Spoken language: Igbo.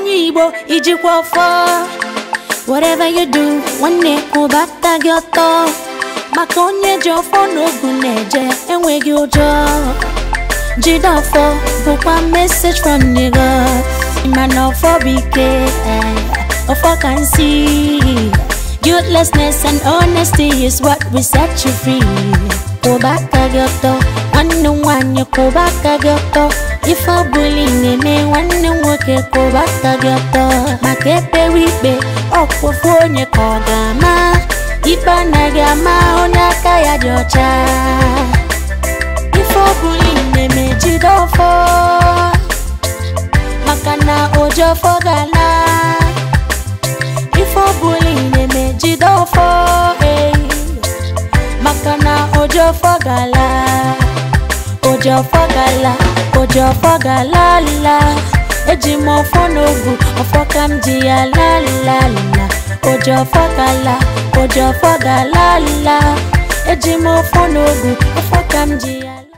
onye Igbo ijikwa ọfọ whatever you do nwanne kwụbata gị ọtọ maka onye ji ọfọ n'ogu na-eje enweghị ụjọ jide ọfọ bụkwa message from nigo. mana ọfọ bụ ike eh, ọfọ ka nsi guiltlessness and honesty is what we set you free kwụba kaghi gị ọtọ nwanne nwanyị nwaanyị gị ọtọ ife ọbụla na-eme nwanne m nwoke kwụrụ gị ọtọ maka ekpewe ikpe ọkpụfụ onye ka ọ ga-ama ikpe anaghị ama onye aka ya dị ọcha ife ọbụla na-eme jide ọfọ maka na oji ọfọ ga ife na-eme jide ọfọ eh. maka na oji ga oji ọfọ gala oji ọfọ gala la eji m ọfọ n'ogu ọfọ ka m ji ya la la la oji ọfọ gala oji ọfọ gala la eji m ọfọ n'ogu ọfọ ka m ji ya